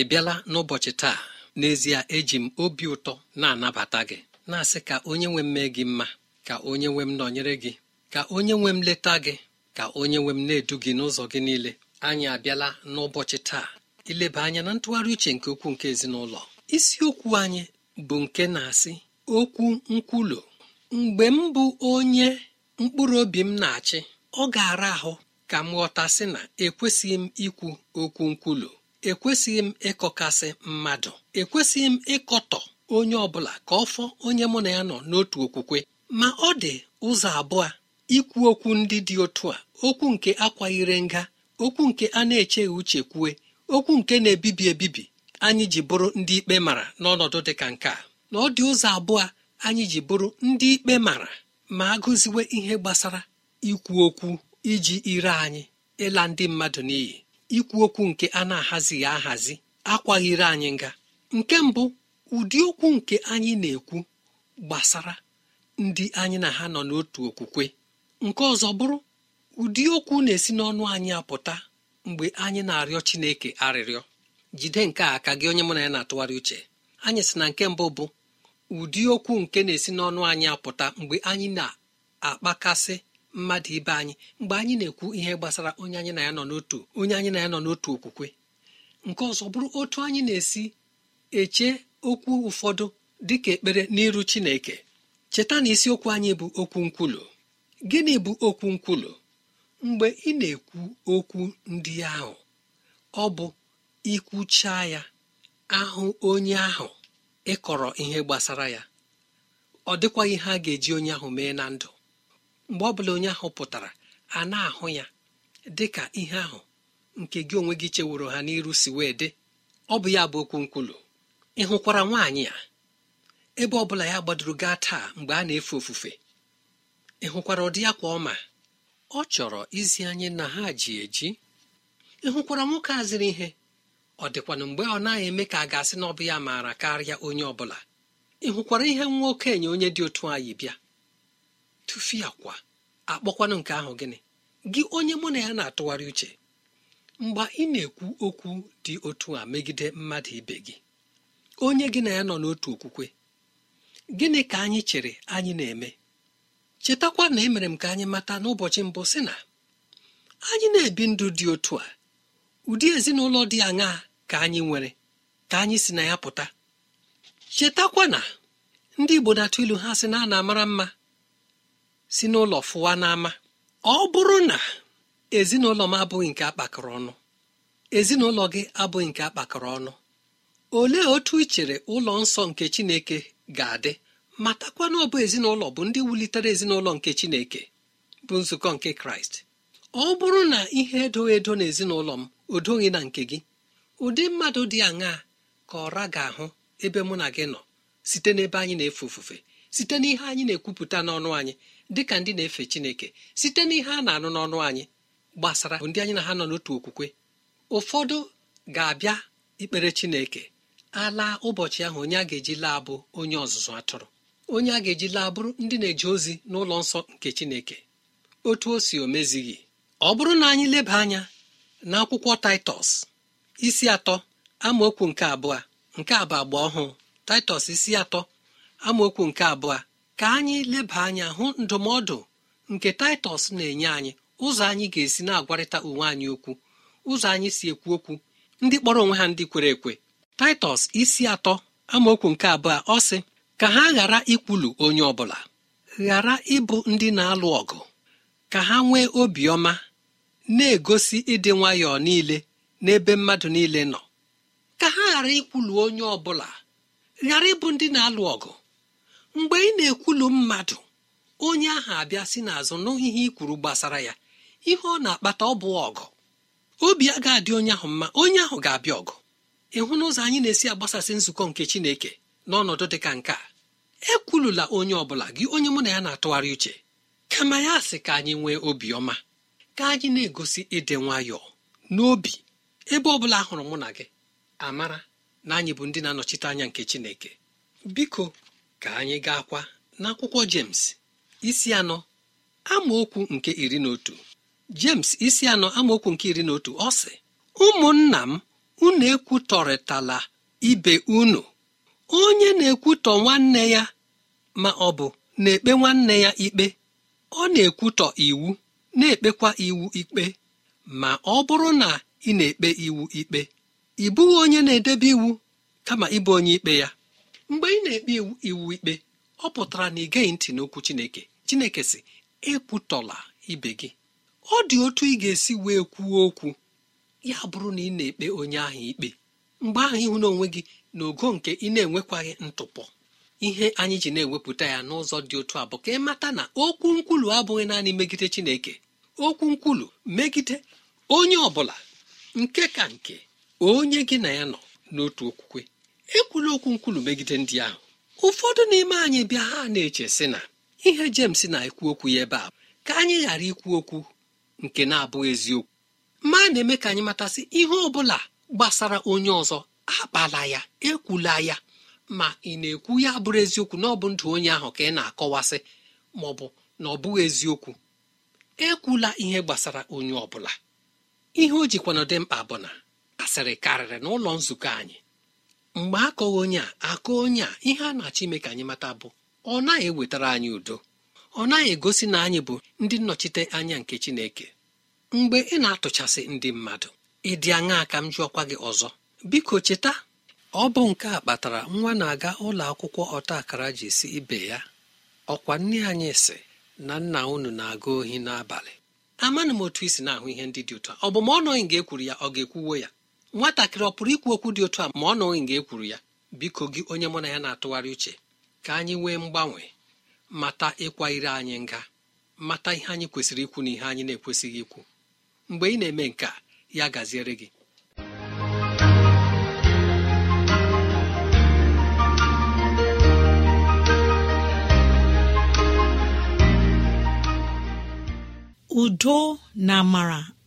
ị bịala n'ụbọchị taa n'ezie eji m obi ụtọ na-anabata gị na-asị ka onye nwe m mee gị mma ka onye nwe m nọnyere gị ka onye nwe m leta gị ka onye nwe m na-edu gị n'ụzọ gị niile anyị abịala n'ụbọchị taa ileba anya na ntụgharị uche nke ukwuu nke ezinụlọ isiokwu anyị bụ nke na-asị okwu nkwulu mgbe m bụ onye mkpụrụ obi m na-achị ọ ga-ara ahụ ka m ghọtasị na ekwesịghị m ikwu okwu nkwulu ekwesịghị m ịkọkasị mmadụ ekwesịghị m ịkọtọ onye ọbụla ka ọ fọ onye mụ na ya nọ n'otu okwukwe ma ọ dị ụzọ abụọ ikwu okwu ndị dị otu a okwu nke akwanyere nga okwu nke a na-echeghị uche kwue okwu nke na-ebibi ebibi anyị ji bụrụ ndị ikpe mara n'ọnọdụ dị ka nke a na ọ dị ụzọ abụọ anyị ji bụrụ ndị ikpe mara ma agụziwe ihe gbasara ikwu okwu iji ire anyị ịla ndị mmadụ n'iyi ikwu okwu nke a na-ahazighị ahazi akwaghịrị anyị nga nke mbụ ụdị okwu nke anyị na-ekwu gbasara ndị anyị na ha nọ n'otu okwukwe nke ọzọ bụrụ ụdị okwu na-esi n'ọnụ anyị apụta mgbe anyị na-arịọ Chineke arịrịọ jide nke a ka gị onye mụ na ya na-atụgharị uche anyị sị na nke mbụ bụ ụdị okwu nke na-esi n'ọnụ anyị apụta mgbe anyị na-akpakasị mmadụ ibe anyị mgbe anyị na-ekwu ihe gbasara onye anyị na ya nọ n'otu onye anyị na ya nọ n'otu okwukwe nke ọzọ bụrụ otu anyị na-esi eche okwu ụfọdụ dị ka ekpere n'iru chineke cheta na isiokwu anyị bụ okwu nkwulu gịnị bụ okwu nkwulu mgbe ị na-ekwu okwu ndị ahụ ọ bụ ikwucha ya ahụ onye ahụ ịkọrọ ihe gbasara ya ọ dịkwaghị ha ga-eji onye ahụ mee na ndụ mgbe ọ bụla onye ahụ pụtara a na-ahụ ya dị ka ihe ahụ nke gị onwe gị cheworo ha n'iru si wee dị ọ bụ ya bụ okwu nkwulu ị hụkwara nwaanyị a ebe ọ bụla ya gbadoro gaa taa mgbe a na-efe ofufe ị hụkwara ụdị ya kwa ọma ọ chọrọ izi anyị na ha ji eji ị hụkwara nwoke a ihe ọ dịkwana mgbe ọ naghị eme ka a ga-asị na ọ bụ ya maara karịa onye ọ bụla ị hụkwara ihe nwa okenye onye dị otu anyị bịa tụfie akwa akpọkwanụ nke ahụ gịnị gị onye mụ na ya na-atụgharị uche mgbe ị na-ekwu okwu dị otu a megide mmadụ ibe gị onye gị na ya nọ n'otu okwukwe gịnị ka anyị chere anyị na-eme chetakwa na emere m ka anyị mata n'ụbọchị mbụ sị na anyị na-ebi ndụ dị otu a ụdị ezinụlọ dị aṅaa ka anyị nwere ka anyị si na ya pụta chetakwa na ndị igbo na-atụ ilu ha sị na a na-amara mma si n'ụlọ fụwa n'ama ọ bụrụ na ezinụlọ m abụghị nke akpakọrọ ọnụ ezinụlọ gị abụghị nke akpakọrọ ọnụ olee otu ị chere ụlọ nsọ nke chineke ga-adị matakwa na ọ bụ ezinụlọ bụ ndị wulitere ezinụlọ nke chineke bụ nzukọ nke kraịst ọ bụrụ na ihe edoghị edo na ezinụlọ m odoghị na nke gị ụdị mmadụ dị aṅaa ka ọra ga-ahụ ebe mụ na gị nọ site n'ebe anyị na-efe ofufe site n'ihe anyị na-ekwupụta n'ọnụ anyị dịka ndị na-efe chineke site n'ihe a na-anụ n'ọnụ anyị gbasara ndị anyị na ha nọ n'otu okwukwe ụfọdụ ga-abịa ikpere chineke ala ụbọchị ahụ onye a ga-eji laa bụ onye ọzụzụ atụrụ onye a ga-eji laa bụrụ ndị na-eje ozi n'ụlọ nsọ nke chineke otu o si omezighị ọ bụrụ na anyị leba anya n'akwụkwọ taịtọs isi atọ amaokwu nke abụọ nke abụ agba ọhụụ taịtọs isi atọ amaokwu nke abụọ ka anyị leba anya hụ ndụmọdụ nke taịtọs na-enye anyị ụzọ anyị ga-esi na-agwarịta onwe anyị okwu ụzọ anyị si ekwu okwu ndị kpọrọ onwe ha ndị kwere ekwe taịtọs isi atọ amaokwu nke abụọ ọ sị ka ha ghara ikwulu onye ọbụla ghara ịbụ ndị na-alụ ọgụ ka ha nwee obiọma na-egosi ịdị nwayọọ niile n'ebe mmadụ niile nọ ka ha ghara ikwulu onye ọbụla ghara ịbụ ndị na-alụ ọgụ mgbe ị na-ekwulu mmadụ onye ahụ abịa si n'azụ n'ihe ikwuru gbasara ya ihe ọ na-akpata ọ bụ ọgụ obi a ga-adị onye ahụ mma onye ahụ ga-abịa ọgụ ịhụ n'ụzọ anyị na-esi agbasasị nzukọ nke chineke n'ọnọdụ dị ka nke a ekwulula onye ọ bụla gị onye mụ na ya na-atụgharị uche kama ya sị ka anyị nwee obiọma ka anyị na-egosi ịdị nwayọọ n'obi ebe ọ bụla hụrụ mụ na gị amara na anyị bụ ndị na-anọchite anya nke chineke biko ka anyị gaakwa n'akwụkwọ jems isi anọ amaokwu nke iri na otu jems isi anọ amaokwu nke iri na otu ọ sị ụmụnna m unu ekwutọrịtala ibe unu onye na-ekwutọ nwanne ya ma ọ bụ na-ekpe nwanne ya ikpe ọ na-ekwutọ iwu na-ekpekwa iwu ikpe ma ọ bụrụ na ị na-ekpe iwu ikpe ị bụghị onye na-edebe iwu kama ịbụ onye ikpe ya mgbe ị na-ekpe iwu ikpe ọ pụtara na ị gaghị ntị n'okwu chineke chineke si ekwutọla ibe gị ọ dị otu ị ga-esi wee kwuo okwu ya bụrụ na ị na-ekpe onye ahụ ikpe mgbe ahụ ịhụ n'onwe gị na ogo nke ị na-enwekwaghị ntụpọ ihe anyị ji na-ewepụta ya n'ụzọ dị otu a bụ ka ị mata na okwu nkwulu abụghị naanị megide chineke okwu nkwulu megide onye ọ bụla nke ka nke onye gị na ya nọ n'otu okwukwe ekwula okwu nkwulu megide ndị ahụ ụfọdụ n'ime anyị bịa ha na-eche sị na ihe Jems na-ekwu okwu ya ebe a ka anyị ghara ikwu okwu nke na-abụghị eziokwu ma na-eme ka anyị matasị ihe ọ bụla gbasara onye ọzọ akpala ya ekwula ya ma ị na-ekwu ya bụrụ eziokwu na ọ bụ ndụ onye ahụ ka ị na-akọwasị ma ọ bụ na ọ bụghị eziokwu ekwula ihe gbasara onye ọ bụla ihe o jikwana dị mkpa bụ na asịrị karịrị n'ụlọ nzukọ anyị mgbe akọghị onye a akọ onye a ihe a na-achọ ime ka anyị mata bụ ọ naghị ewetara anyị udo ọ naghị egosi na anyị bụ ndị nnọchite anya nke Chineke mgbe ị na-atụchasị ndị mmadụ ị dị aṅaa ka m jụọkwa gị ọzọ biko cheta ọ bụ nke a kpatara nwa na-aga ụlọ akwụkwọ ọta akara ji si ibe ya ọkwa nne anyị si na nna unu na-aga ohi n'abalị amaghị m otu isi na-ahụ ihe ndị dị ụtọ ọ bụ ma ọ nọghị nga ekwuru ya ọ ga-ekwuwo ya nwatakịrị ọ pụrụ ikwu okwu dị otu a ma ọ nọghị nga ekwuru ya biko gị onye mụ na ya na-atụgharị uche ka anyị nwee mgbanwe mata ịkwa ire anyị nga mata ihe anyị kwesịrị ikwu na ihe anyị na-ekwesịghị ikwu mgbe ị na-eme nke a ya gaziere gị udo na amara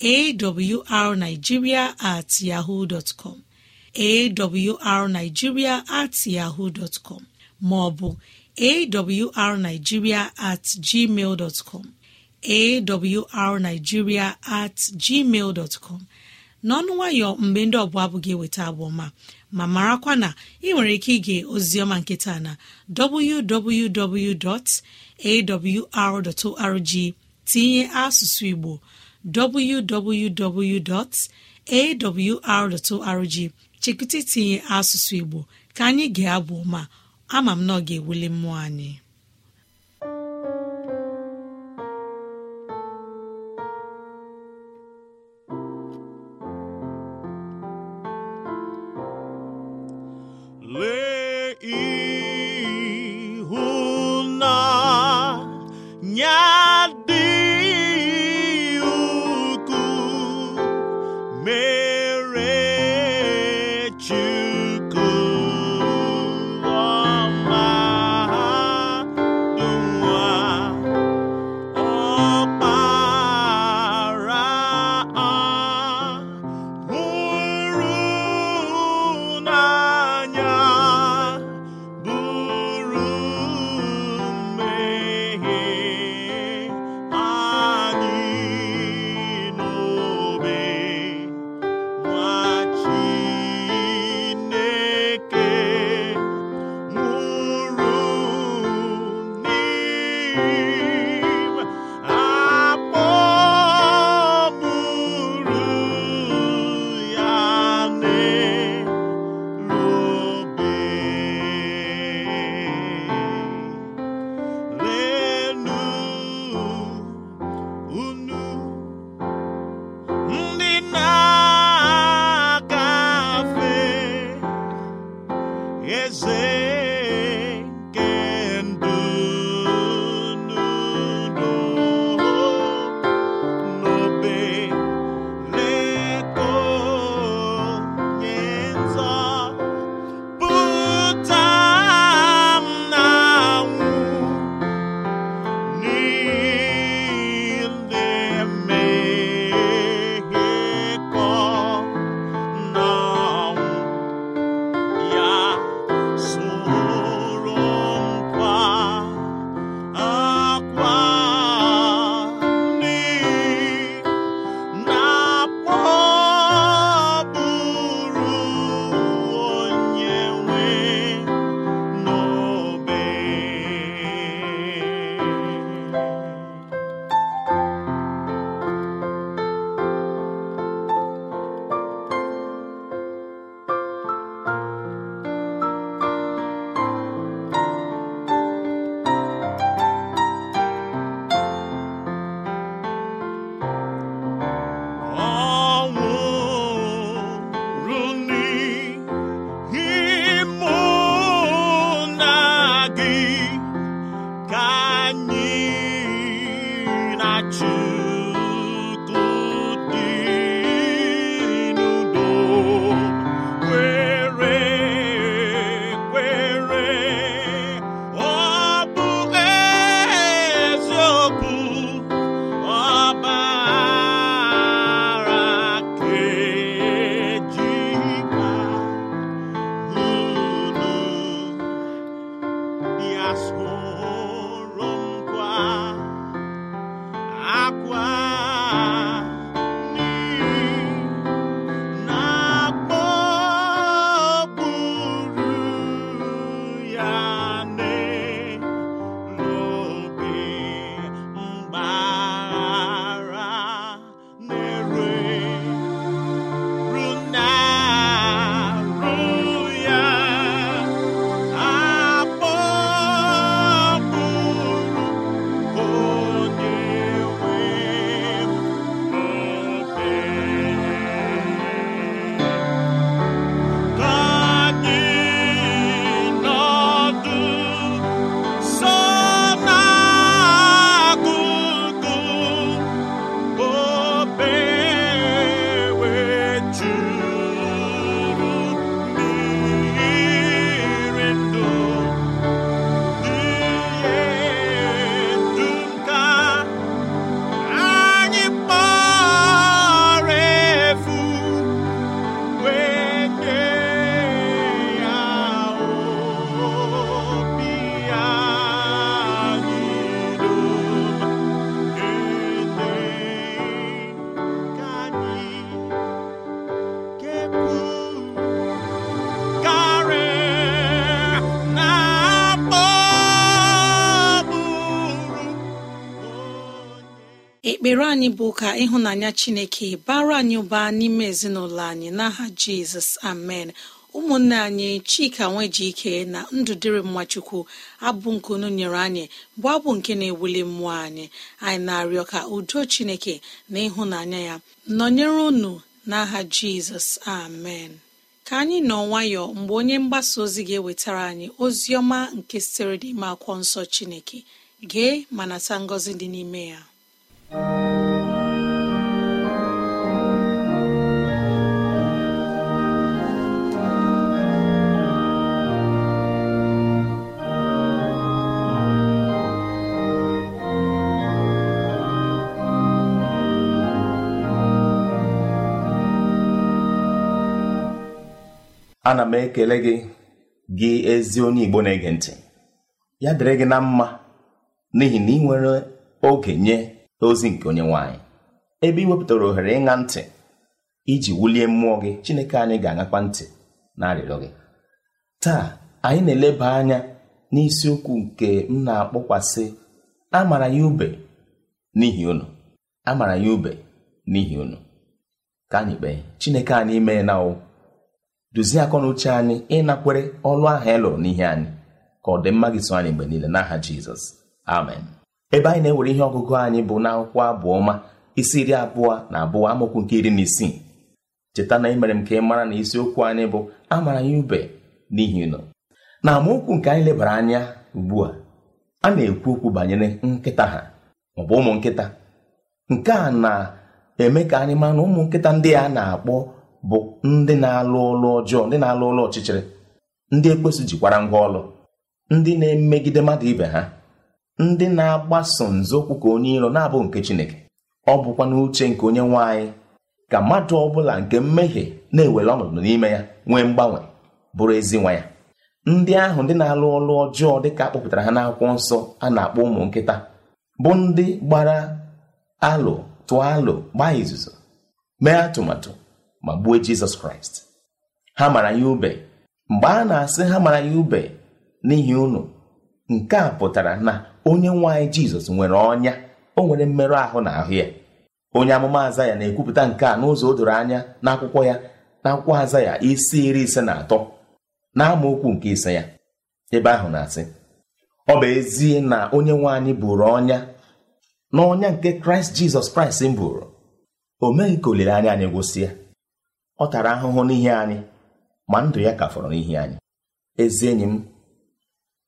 awrnigeria at yahoo com awrnigeria at yahoo maọbụ awrnigeria at gmail com awrnigeria at gmail dọtcom n'ọnụ nwayọ mgbe ndị ọbụla abụghị eweta abụọma ma marakwa na ị nwere ike ige ozioma nkịta na www.awr.org tinye asụsụ Igbo www.awr.org chekụta itinye asụsụ Igbo ka anyị ga-abụ ma ama m na ọ ga-ewuli mmụọ anyị ekpere anyị bụ ka ịhụnanya chineke bara anyị ụba n'ime ezinụlọ anyị n'aha jizọs amen ụmụnne anyị chika nweji ike na ndụdịrị mmachukwu abụ nke unu nyere anyị bụ abụ nke na-ewuli mmụọ anyị anyị na-arịọ ka udo chineke na ịhụnanya ya nọnyere unu n'aha jizọs amen ka anyị nọ nwayọ mgbe onye mgbasa ozi ga-ewetara anyị ozi ọma nke sitere ime akwụkwọ nsọ chineke gee ma nata ngọzi dị n'ime ya ana m ekele gị gị ezi onye igbo na-ege ntị ya dịrị gị na mma n'ihi na ị nwere oge nye ozi nke onye nwaanyị ebe ị wepụtara ohere ịṅa ntị iji wulie mmụọ gị Chineke anyị ga-aṅakwa ntị na arịrịọ gị taa anyị na-eleba anya n'isiokwu nke m na-akpọkwasị amara ya ube n'ihi unu amara ya ube n'ihi unu ka anyị kpee Chineke anyị mee na ụ: duzie akọ na uche anyị ịnakwere ọlụ ahụ ị e lụrụ n'ihe anyị ka ọ dị mma gị so anyị mgbe niile n'aha Jizọs amen ebe anyị na-ewere ihe ọgụgụ anyị bụ na akwụkwọ abụọ ọma isi iri abụọ na abụọ amaokwu nke iri na isii cheta na emere m ka ị mara na isiokwu anyị bụ amara ya ube n'ihi nọ na amaokwu nke anyị lebara anya ugbu a a na-ekwu okwu banyere nkịta ha maọbụ ụmụ nkịta nke a na-eme ka anyị mara na ụmụ nkịta ndị a na-akpọ bụ ndị na-alụ ụlọ ọjọọ ndị na-alụ ụlọ ọchịchịrị ndị ekwesị jikwara ngwa ọlụ ndị na-emegide mmadụ ibe ha ndị na-agbaso nzọụkwụ ka onye iro na-abụ nke chineke ọ bụkwa n'uche nke onye nwanyị ka mmadụ ọbụla nke mmehie na-ewere ọnọdụ n'ime ya nwee mgbanwe bụrụ ezi nwa ya ndị ahụ ndị na-alụ ọlụ ọjọọ dịka akpọpụtara ha n'akwụkwọ nsọ a na-akpọ ụmụ nkịta bụ ndị gbara alụ tụọ alụ gbaa izuzo mee atụmatụ ma gbuo jizọs kraịst ha mara ya ube mgbe a na-asị ha mara ya ube n'ihi unu nke a pụtara na onye nwe anyị jizọs nwere ọnya o nwere mmerụ ahụ na ahụ ya onye amụma aza ya na-ekwupụta nke a n'ụzọ o doro anya akwụkwọ ya na aza ya isi iri ise na atọ na n'amaokwu nke ise ya ebe ahụ na-asị ọ bụ ezie na onye nwe anyị bụrụ ọnya na ọnya nke kraịst jizọs kraịst bụrụ? buru o meghị ka olileanya anyị gwụsịa ọ tara ahụhụ n'ihi anyị ma ndụ ya ka fọrọ n'ihi anyị ezi enyi m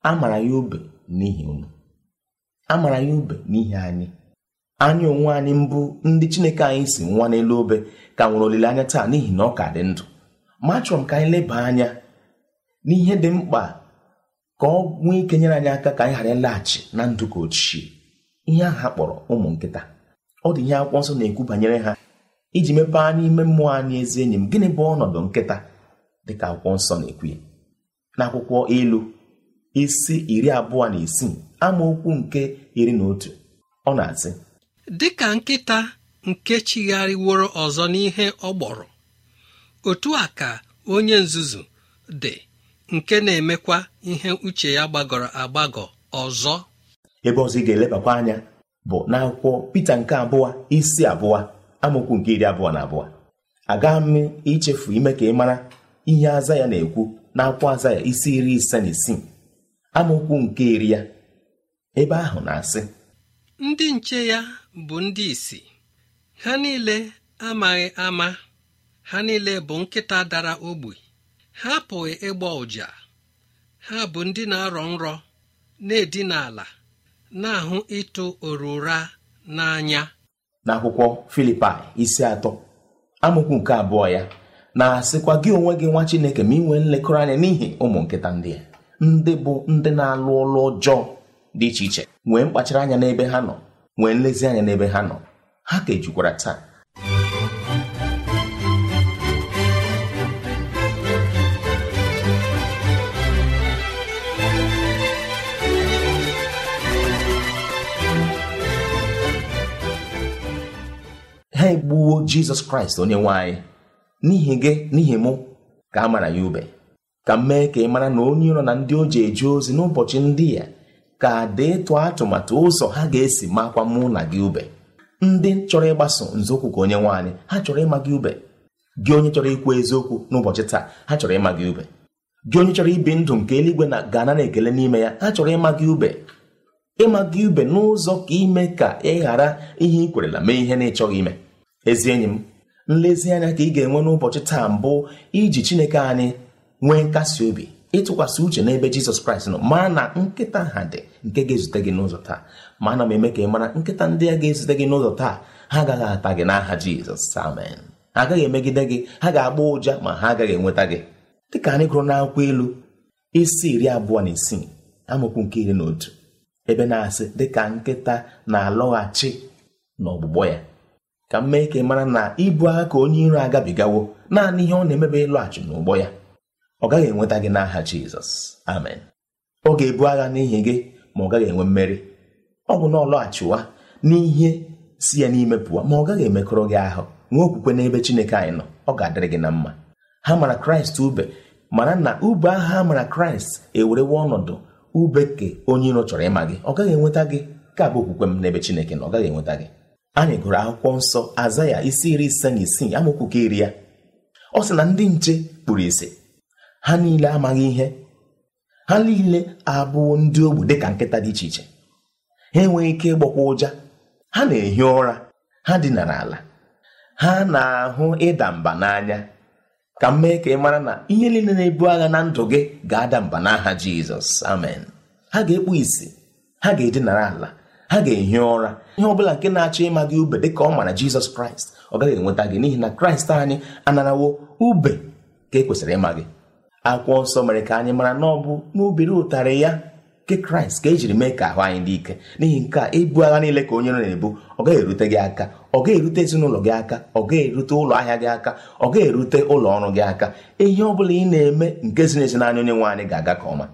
a mara ya obe n'ihi unu a mara anyị ube n'ihi anyị anyị onwe anyị mbụ ndị chineke anyị si nwa n'elu obe ka nwere olileanya taa n'ihi na ọ ka dị ndụ ma achọrọ m ka anyị leba anya n'ihe dị mkpa ka ọ nwee ike nyere anyị aka ka anyị ghara ịlaghachi na ndụ ka ochie ihe ahụ ha kpọrọ ụmụ nkịta ọ dị ihe akwụkwọ nsọ na-ekwu banyere ha iji mepee anya ime mmụọ anyị ezi enyi m gịnị bụ ọnọdụ nkịta dịka akwụkwọ nsọ na-ekwu ya n'akwụkwọ elu? isi iri abụọ na isii amaokwu nke iri na otu ọ na-asị dịka nkịta nke chigharịworo ọzọ n'ihe ọ gbọrọ otu a ka onye nzuzu dị nke na-emekwa ihe uche ya gbagọrọ agbagọ ọzọ ebe ọzọ ị ga-elebakwa anya bụ n'akwụkwọ pete nke abụọ isi abụọ amaokwu nke iri abụọ na abụọ aga m ichefu ime ka ị mara ihe aza ya na-ekwu n'akwụkwọ aza ya isi iri ise na isii amaokwu nke iri ya ebe ahụ na-asị ndị nche ya bụ ndị isi ha niile amaghị ama ha niile bụ nkịta dara ogbi ha apụghị ịgba ụja ha bụ ndị na-arọ nrọ na-edina ala na-ahụ ịtụ orura n'anya n'akwụkwọ filipi isi atọ amokwu nke abụọ ya na-asịkwa gị onwe gị nwa chineke ma nwee nlekọrọ anya n'ihi ụmụ nkịta ndị a ndị bụ ndị na-alụ ọlụ ọjọọ dị iche iche nwee mkpachara anya n'ebe ha nọ nwee nlezianya n'ebe ha nọ ha ka ejukwara taa ha egbuwo jizọs kraịst onye nwanyị n'ihi gị n'ihi mụ ka a mara ya ube ka m mee ka ị mara na onye nọ na ndị o ji eje ozi n'ụbọchị ndị ya ka deetụ atụmatụ ụzọ ha ga-esi makwa mụ na gị ube ndị chọrọ ịgbaso nzọụkwụ ka onye nwaanyị ha chọrọ ịma gị ube gị onye chọrọ ikwu eziokwu n'ụbọchị taa ha chọrọ ịma gị ube gị onye chọrọ ibi ndụ nke eluigwe na gana na ekele n'ime ya ha chọrọ ịma gị ube ịma gị ube n'ụzọ ka ime ka ị ghara ihe ị kwerela mee ihe na ịchọghị ime ezi enyi m nlezianya ka ị ga-enwe n'ụbọchị taa mbụ iji Chineke anyị nwee nkasi obi ịtụkwasị uche n'ebe jizọs kraịst nọ ma na nkịta ha dị nke ga-ezute gị n'ụzọ taa ma ana m eme ka ị mara nkịta ndị a ga-ezute gị n'ụzọ taa ha agaghị ata gị n'aha jizọs amen ha agaghị emegide gị ha ga-agba ụja ma ha agaghị enweta gị dịka anyị gụrụ n'akwụkwọ ilu isi iri abụọ na isii amaokwu nke iri na otu ebe na-asị dịka nkịta na-alọghachi n'ọgbụgbọ ya ka m mee ka ị mara na ibu aka onye iro agabigawo naanị ihe ọ na-emebe ịlọghachi n'ụgbọ ya ọ gaghị enweta gị n'aha jizọs amen ọ ga-ebu agha n'ihi gị ma ọ gaghị enwe mmeri ọ bụ na ọ lọghachiwa n'ihe si ya n'ime pụọ ma ọ gaghị emekọrọ gị ahụ nwee okwukwe n'ebe chineke anyị nọ ọ ga-adịrị gị na mma ha mara kraịst ube mana na ube ahụ ha mara kraịst ewerewe ọnọdụ ube ke onye iro chọrọ ịma gị ọ gaghị enweta gị ka bụ okwukwe m n'ebe chineke na ọ gaghị enweta gị anyị gụrụ akwụkwọ nsọ aza ya isi iri ise na isii amaokwu nke iri ya ọ sị na ndị nche kpuru ise ha niile amaghị ihe ha niile abụọ ndị ogbu dịka nkịta dị iche iche ha enweghị ike ịgbakwa ụja ha na-ehi ụra ha dinara ala ha na-ahụ ịda mba n'anya ka m mee ka ị mara na ihe niile na-ebu agha na ndụ gị ga-ada mba n'aha Jizọs amen ha ga-ekpu isi ha ga-edinara ala ha ga-ehi ụra ihe ọ bụla nke na-achọ ịma gị ube dịka ọ mara Jizọs Kraịst ọ gaghị enweta gị n'ihi na Kraịst anyị anarawo ube ka e kwesịrị ịma gị akwụkwọ nsọ mere ka anyị mara na ọ bụ n'obere ụtarị ya nke kraịst ka ejiri mee ka ahụ anyị dị ike n'ihi nke a ibu agha niile ka onye na-ebu ọ gaghị erute gị aka ọ gaghị erute ezinụlọ gị aka ọ gaghị erute ụlọ ahịa gị aka ọ gaghị erute ụlọ ọrụ gị aka ihe ọ bụla ị na-eme nke ziri ezi n'anya onye nwe anyị ga-aga ka ọma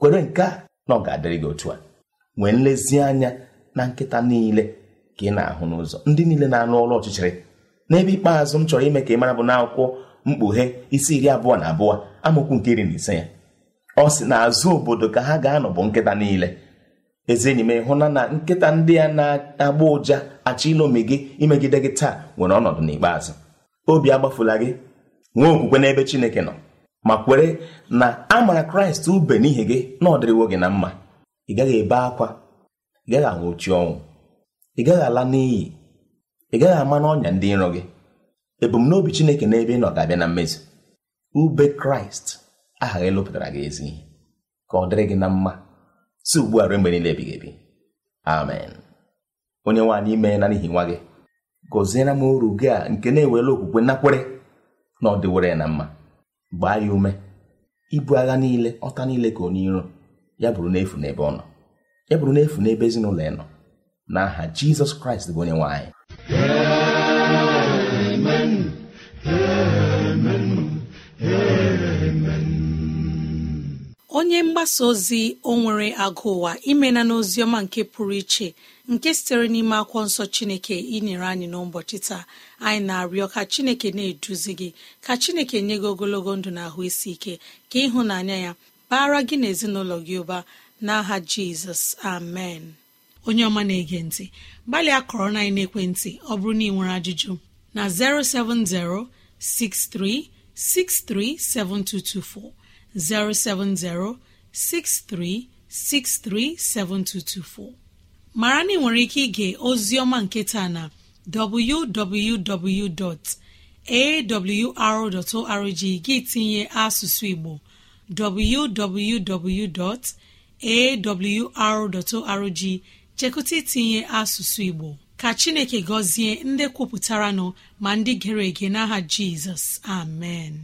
kwere nke a na ọ ga-adịrị gị otu a nwee nlezianya na nkịta niile ka ị na-ahụ n'ụzọ ndị niile na-anụ ọrụ ọchịchịrị n'ebe ikpeazụ m chọrọ ime ka ị mara bụ n'akwụkwọ mkpughe isi iri abụọ na abụọ amaokwu nke iri na ise ya ọ sị na azụ obodo ka ha ga-anọ bụ nkịta niile eze enyi m ịhụna na nkịta ndị a na-agba ụja achọ ilomi gị imegide gị taa nwere ọnọdụ n'ikpeazụ obi agbafula gị nwee okwukwe n'ebe Chineke nọ ma kwere na a mara Kraịst ube n'ihi gị na ọ dịrịwo gị na mma ị gaghị ebe akwa ị gaghị anwụchi ọnwụ ị gaghị ala n'iyi ị gaghị ama n'ọnya ndị nrọ gị ebumnobi Chineke n'ebe ị nọ ga-abịa na mmezi. ube kraịst aha gị lụpụtara gị ezi ka ọ dịrị gị na mma si ugbu a ruo mgbe niile ebighị ebi amen onye nwaanyị ime na n'ihi nwa gị gọziere m uru gị a nke na-ewere okwukwe nakwere na ọ dịwere na mma gbaa ya ume ibu agha niile ọta niile ka onye iro ya bụrụ n'efu n'ebe ọ nọ ya bụrụ n'efu n'ebe ezinụlọ ya nọ na aha jizọs kraịst bụ onye nwaanyị amen amen onye mgbasa ozi o nwere agụ ụwa imena n'oziọma nke pụrụ iche nke sitere n'ime akwụkwọ nsọ chineke inyere anyị n'ụbọchị taa anyị na-arịọ ka chineke na-eduzi gị ka chineke nye gị ogologo ndụ na ahụ isi ike ka ịhụnanya ya bara gị na ezinụlọ gị ụba n'aha jizọs amen onye ọma na-ege ntị gbalịa kọrọ na ekwentị ọ bụrụ na ị nwere ajụjụ na 07063 637224 mara na ị nwere ike ige oziọma nketa na www.awr.org gị tinye asụsụ Igbo www.awr.org chekụta itinye asụsụ Igbo ka chineke gọzie ndị kwupụtara nọ ma ndị gere ege n'aha jizọs amen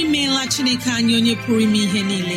imeela chineke anyị onye pụrụ ime ihe niile